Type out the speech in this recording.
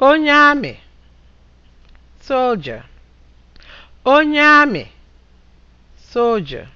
onye amị soldier onye amị soldier